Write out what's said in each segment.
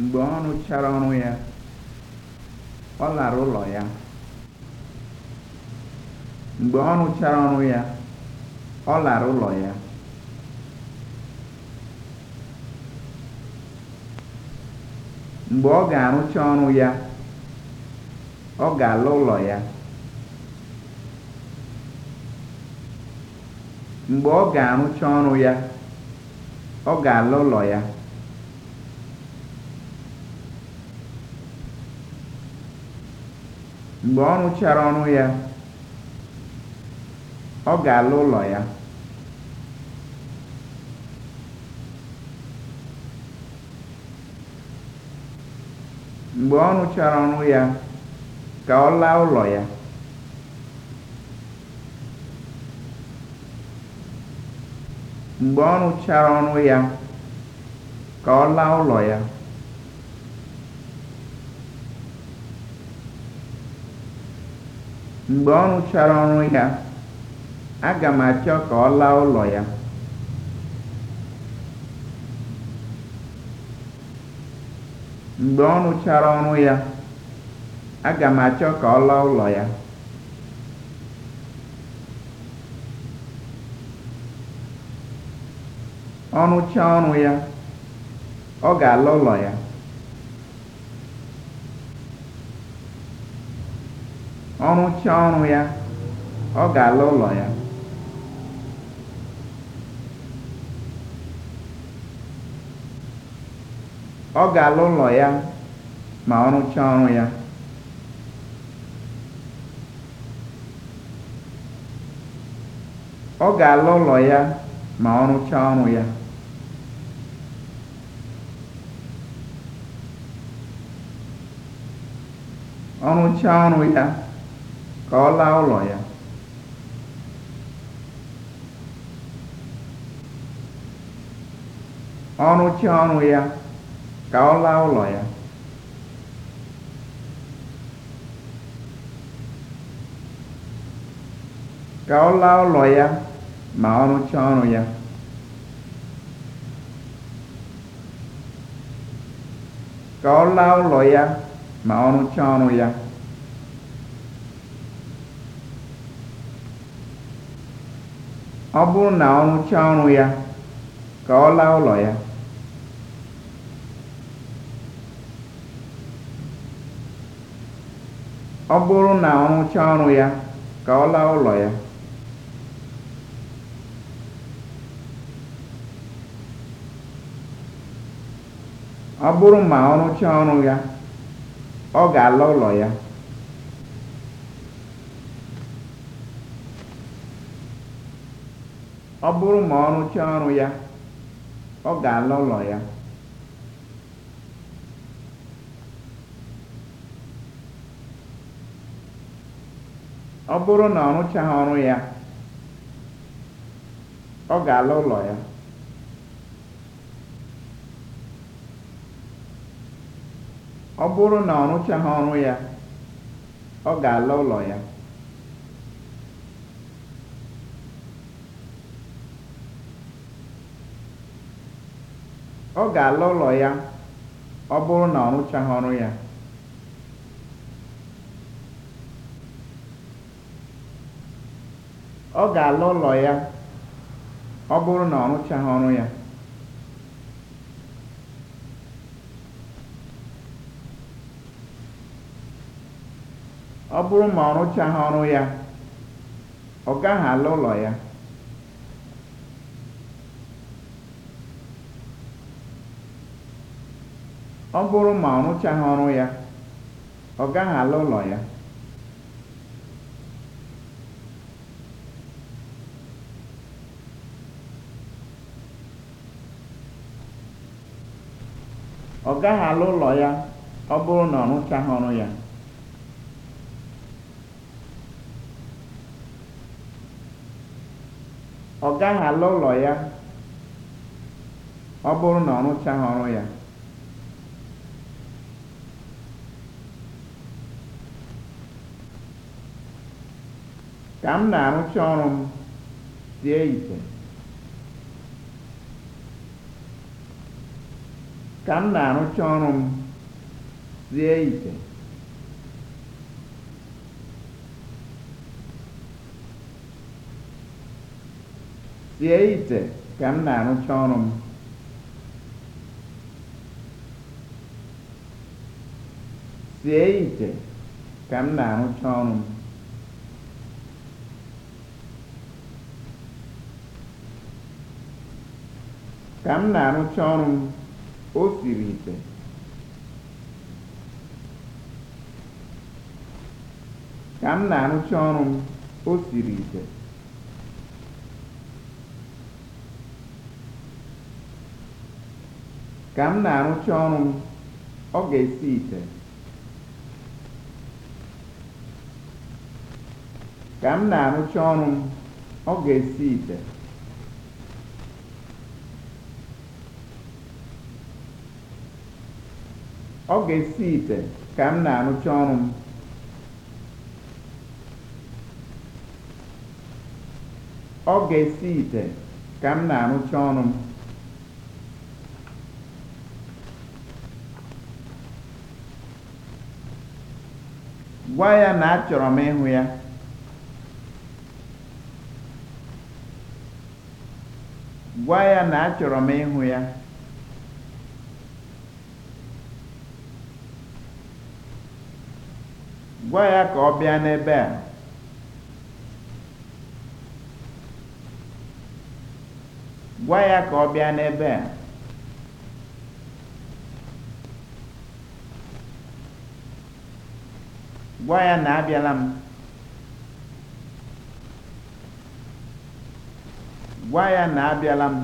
Mgbe ọ rụchara ọrụ ya, ọ lara ụlọ ya. Mgbe ọ rụchara ọrụ ya, ọ lara ụlọ ya. Mgbe ọ ga-arụcha ọrụ ya, ọ ga-ala ụlọ ya. Mgbe ọ ga-arụcha ọrụ ya, ọ ga-ala ụlọ ya. mgbe ọ rụchara ọrụ ya ọ ga-ala ụlọ ya mgbe ọ rụchara ọrụ ya ka ọ laa ụlọ ya mgbe ọ rụchara ọrụ ya ka ọ laa ụlọ ya mgbe ọ rụchara ọrụ ya aga m achọ ka ọ laa ụlọ ya ọ rụchaa ọrụ ya ọ ga-ala ụlọ ya Ọ rụchaa ọrụ ya, ọ ga-ala ụlọ ya. Ọ ga-ala ụlọ ya ma ọ rụchaa ọrụ ya. Ọ ga-ala ụlọ ya ma ọ rụchaa ọrụ ya. Ọ rụchaa ọrụ ya ka ọ laa ụlọ ya. Ọ rụchaa ọrụ ya, ka ọ laa ụlọ ya. Ka ọ laa ụlọ ya ma ọ rụchaa ọrụ ya. Ka ọ laa ụlọ ya ma ọ rụchaa ọrụ ya. ọ bụrụ na ọ rụchaa ọrụ ya ka ọ laa ụlọ ya ọ bụrụ rụchaa ọrụ ya ka ọ laa ụlọ ya ọ bụrụ ma ọ rụchaa ọrụ ya ọ ga-ala ụlọ ya ọ bụrụ ma ọ rụchaa ọrụ ya ọ ga alọ na ọ na ọ rụchaghị ọrụ ya ọ ga-ala ụlọ ya Ọ ga-ala ụlọ ya ọ bụrụ na ọ rụchaghị ọrụ ya. Ọ ga ụlọ ya ọ bụrụ na ọ rụchaghị ọrụ ya. Ọ bụrụ ma ọ rụchaghị ọrụ ya, ọ gaghị ala ụlọ ya. Ọ bụrụ na ọ rụchaghị ya. Ọ gaghị ala ụlọ ya ọ bụrụ na ọ rụchaghị ọrụ ya. ka m na-arụcha ọrụ m sie ite ka m na-arụcha ọrụ m sie ite sie ite ka m na-arụcha ọrụ m sie ite ka m na-arụcha ọrụ m ka m na-arụcha ọrụ m o siri ite ka m na-arụcha ọrụ m ite ka m na-arụcha ọrụ m ọ ga-esi ite ọ ga-esi ite ka m na-arụcha ọrụ m gwa ya na achọrọ m gwa ya na achọrọ m ịhụ ya Gwa ya ka ọ bịa n'ebe a. Gwa ya ka ọ bịa n'ebe a. Gwa ya na abịala m. Gwa ya na abịala m.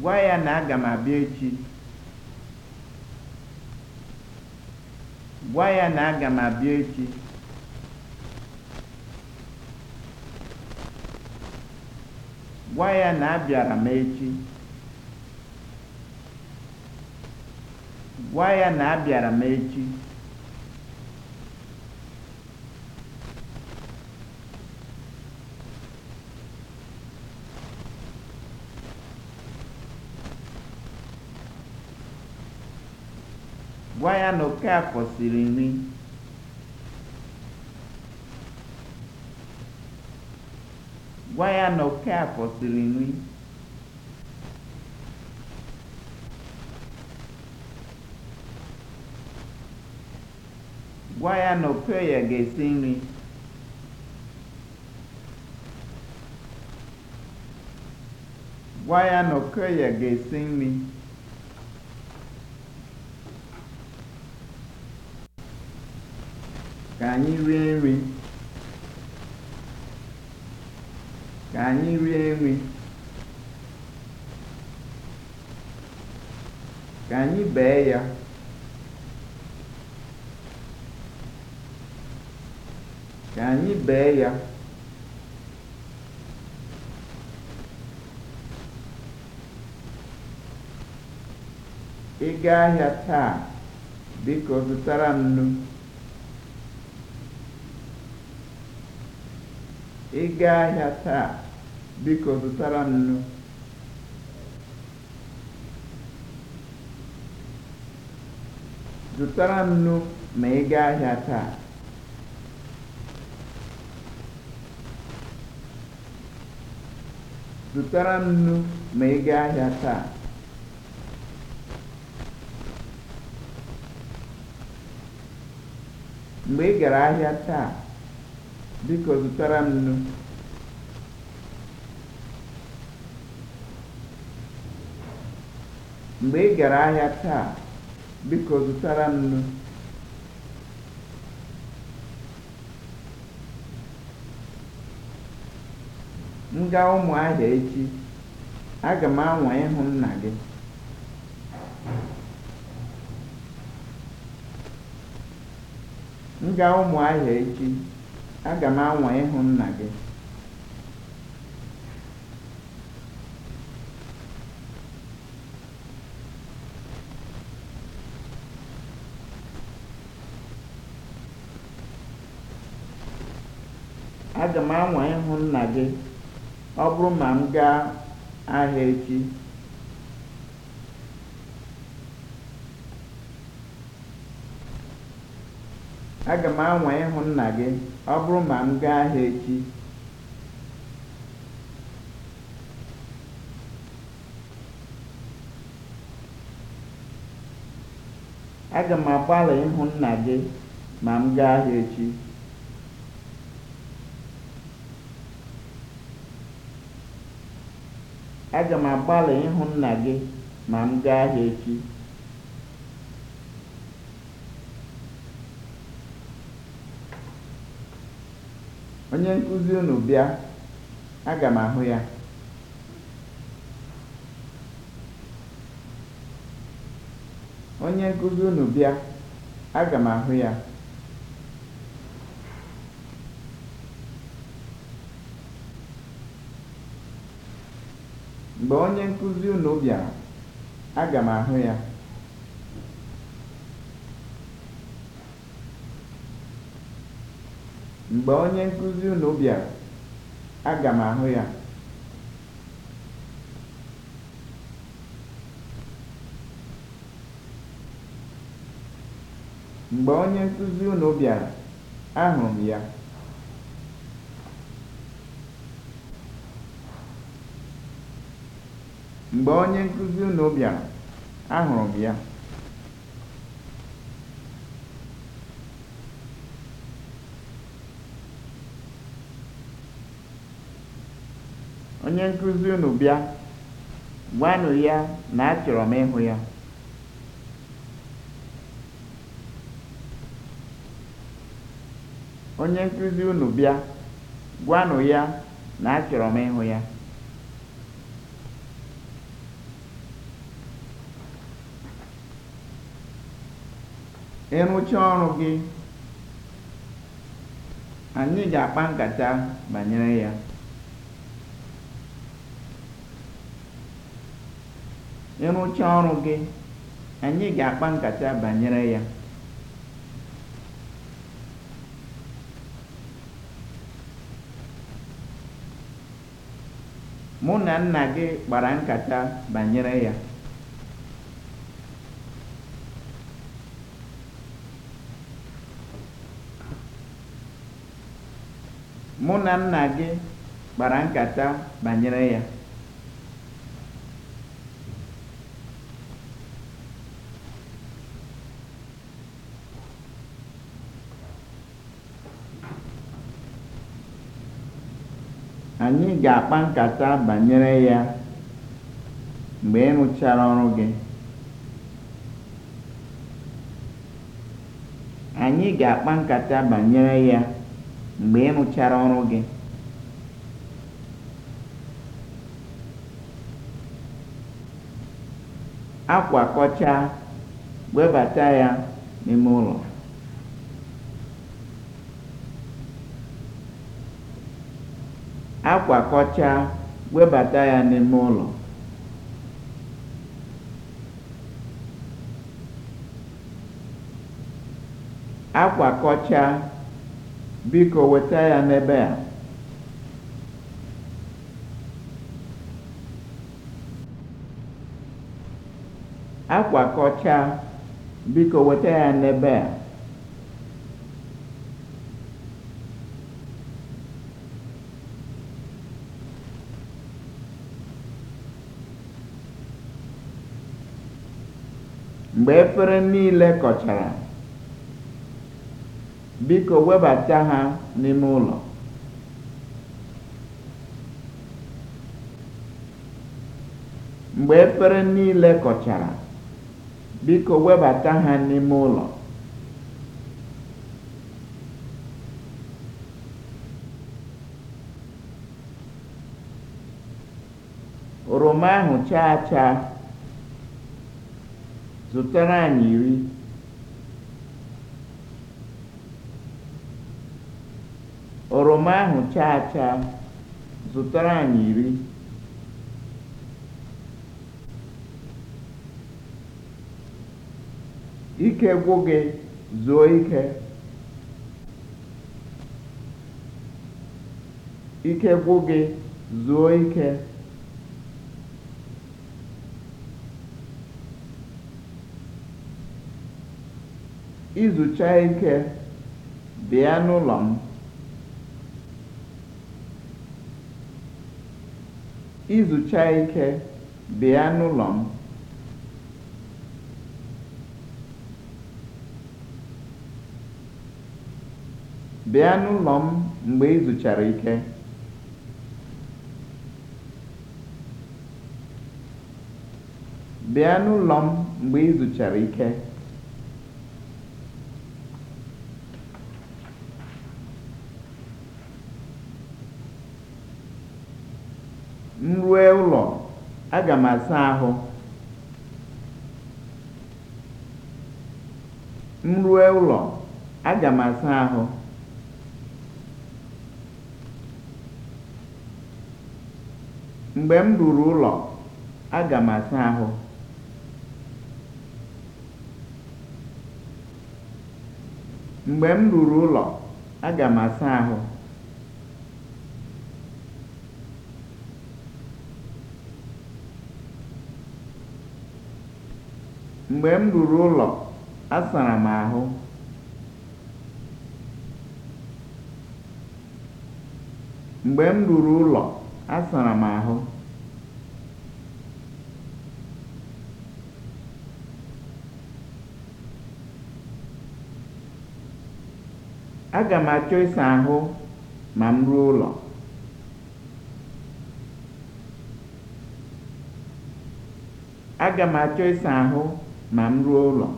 Gwa ya na aga m abịa echi. Gwa ya na aga m abịa echi. Gwa ya na abịara m echi. Gwa ya na abịara m echi. Gwa ya na Okaafọ siri nri. Gwa ya na Okaafọ siri nri. Gwa ya na Okoye ga-esi nri. Gwa ya na Okoye ga-esi nri. ka anyị rie nri ka anyị rie nri ka anyị bee ya ka anyị bee ya ị gaa ahịa taa biko zụtara m nnu Ị gaa ahịa taa, biko zụtara m nnu. Zụtara m nnu ma ị gaa ahịa taa. Zụtara m nnu ma ị gaa ahịa taa. Mgbe ị gara ahịa taa Biko zụtara nnu. Mgbe ị gara ahịa taa, biko zụtara m nnu. M gaa ahịa echi, aga m anwa ịhụ nna gị. M gaa ahịa echi. Aga m anwa ịhụ nna gị. ọ bụrụ ma m gaa ahịa echi. Aga m anwa ịhụ nna gị. Ọ bụrụ ma m gaa ahịa echi, aga m agbalị ịhụ nna gị ma m gaa ahịa m agbalị ịhụ nna gị ma m gaa ahịa echi. Onye nkụzi unu bịa, aga m ya. Mgbe onye nkụzi unu bịara, aga m ahụ ya. Mgbe onye nkụzi unu bịara, aga m ahụ ya. Mgbe onye nkụzi unu bịara, m ahụrụ m ya. Onye nkụzi unu bịa, gwanụ ya na achọrọ m ịhụ ya. Onye nkụzi unu bịa, m ịhụ ya. Ị ọrụ gị, anyị ga-akpa nkata banyere ya. ịrụcha ọrụ gị anyị ga-akpa nkata banyere ya mụ na nna gị kpara nkata banyere ya mụ na nna gị kpara nkata banyere ya anyị ga-akpa nkata banyere ya mgbe ị rụchara ọrụ gị anyị ga-akpa nkata akwakọcha webata ya n'ime ụlọ Akwa akwakọchaa webata ya n'ime ụlọ Akwa akwakọchaa biko weta ya n'ebe a Akwa akwakọchaa biko weta ya n'ebe a Mgbe efere niile kọchara, biko webata ha n'ime ụlọ. kọchara, biko webata ha n'ime ụlọ. Oroma ahụ chaa chaa Zụtara anyị iri. Oroma ahụ chaa achaa, zụtara anyị iri. Ike gwụ gị, zuo ike. Ike gwụ gị, zuo ike. izucha ike, bịa n'ụlọ m. bịa n'ụlọ m. mgbe izuchara ike. M rue ụlọ, aga m asa ahụ. M rue ụlọ, aga m asa ahụ. Mgbe m ruru ụlọ, aga m asa ahụ. Mgbe m ruru ụlọ, aga m asa ahụ. Mgbe m ruru ụlọ, asara m ahụ. Mgbe m ruru ụlọ, asara m ahụ. Aga m achọ ịsa ahụ ma m ruo ụlọ. Aga m achọ ịsa ahụ ma m ruo ụlọ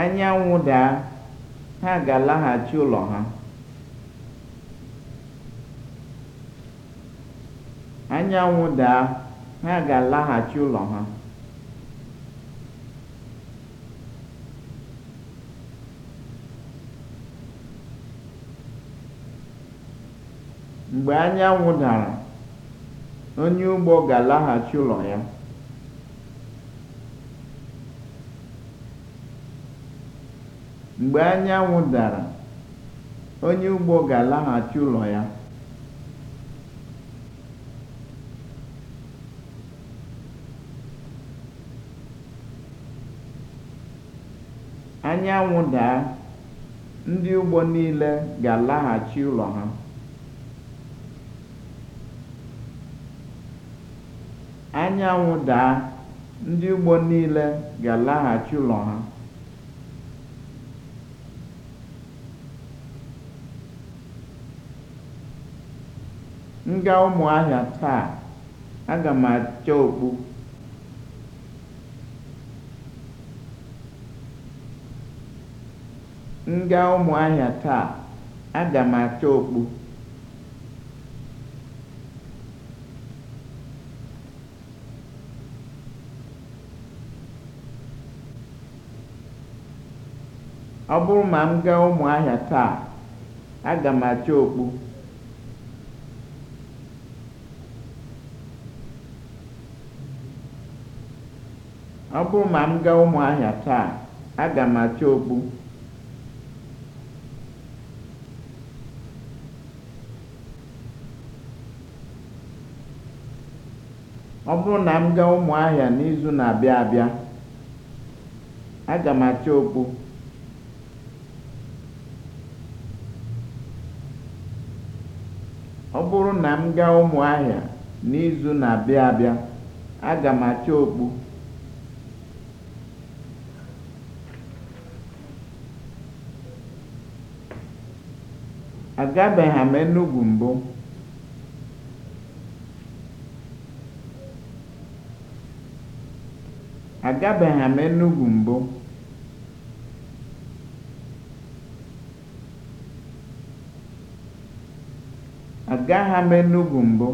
anyanwụ daa, ha ga-alaghachi ụlọ ha anyanwụ daa, ha ga-alaghachi ụlọ ha Mgbe anyanwụ dara, onye ugbo ga-alaghachi ụlọ ya. Mgbe anyanwụ dara, onye ugbo ga-alaghachi ụlọ ya. Anyanwụ daa, ndị ugbo niile ga-alaghachi ụlọ ha. anyanwụ daa, ndị ugbo niile ga-alaghachi ụlọ ha. Nga gaa Ụmụahịa taa, aga m acha okpu. Ọ bụrụ ma m gaa taa, aga m okpu. taa, aga m okpu. Ọ bụrụ na m gaa Ụmụahịa n'izu na-abịa abịa, aga m achọ okpu. Ọ bụrụ na m gaa Ụmụahịa n'izu na-abịa abịa, aga m achọ okpu. Agabeghị m m Enugwu mbụ. gaa m Enugwu mbụ.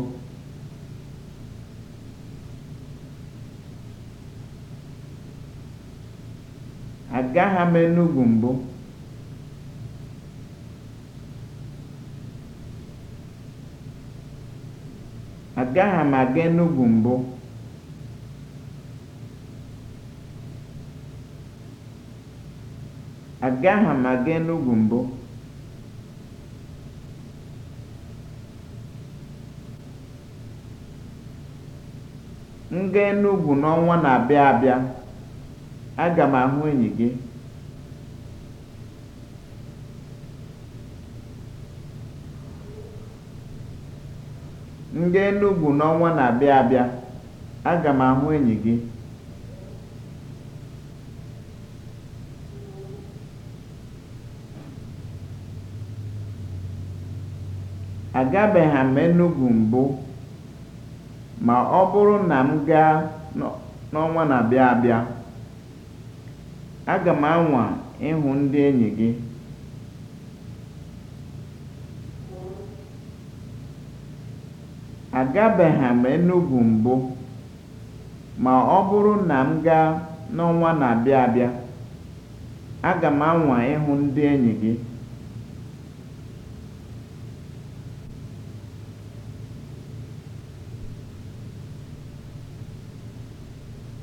Agagha m Enugwu mbụ. Agagha m aga Enugwu mbụ. Agagha m aga Enugwu mbụ. M gaa Enugwu n'ọnwa na-abịa abịa, aga m ahụ enyi gị. M Enugwu aga m ahụ enyi gị. Agabeghị m Enugwu mbụ. ma ọ bụrụ na m gaa n'ọnwa na-abịa abịa, aga m anwa ịhụ ndị enyi gị. Agabeghị m Enugwu mbụ, ma ọ bụrụ na m gaa n'ọnwa na-abịa abịa, aga m anwa ịhụ ndị enyi gị.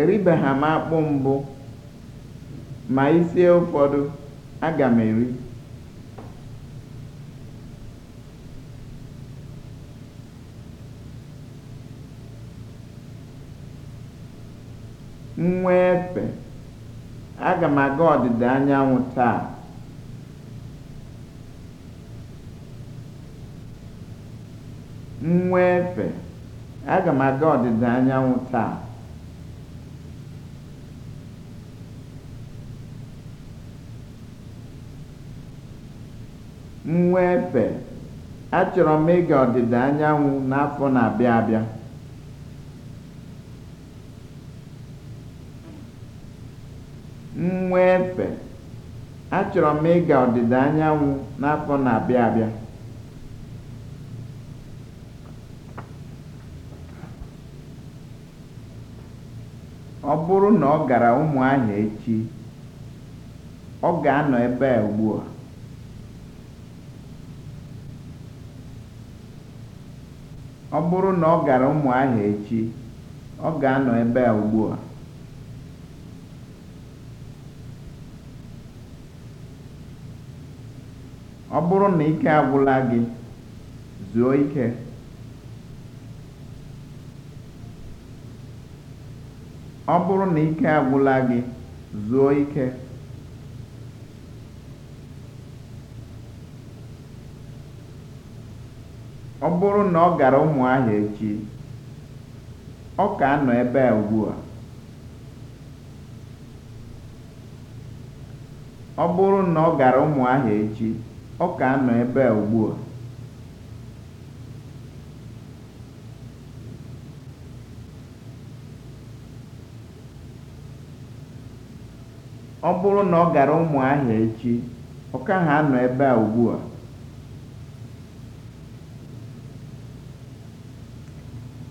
Eribeghị m akpụ mbụ, ma isie ụfọdụ, aga m eri. Nwa aga m aga efe, aga m aga ọdịda anyanwụ taa. mwepè achọrọ m ịga ọdịda anyanwụ n'afọ na-abịa achọrọ m ịga ọdịda anyanwụ n'afọ na-abịa abịa ọ bụrụ na ọ gara ụmụ ahịa echi ọ ga-anọ ebe a ugbu a Ọ bụrụ na ọ gara Ụmụahịa echi, ọ ga-anọ ebe a ugbua. Ọ bụrụ na ike agwụla Ọ bụrụ na ike agwụla gị, zuo ike. Ọ bụrụ na ọ gara Ụmụahịa echi, Ọ bụrụ na ọ gara Ụmụahịa echi, ọ ka nọ ebe a ebe a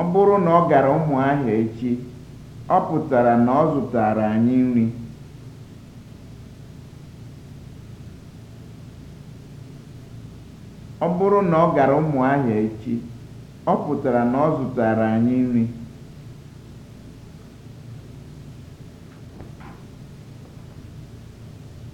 Ọ bụrụ na ọ gara Ụmụahịa echi, ọ pụtara na ọ zụtara echi, ọ pụtara na ọ zụtaara anyị nri.